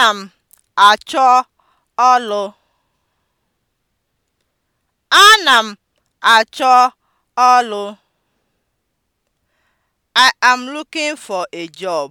Ana m achọ ọlụ. Ana m achọ ọlụ. I am looking for a job.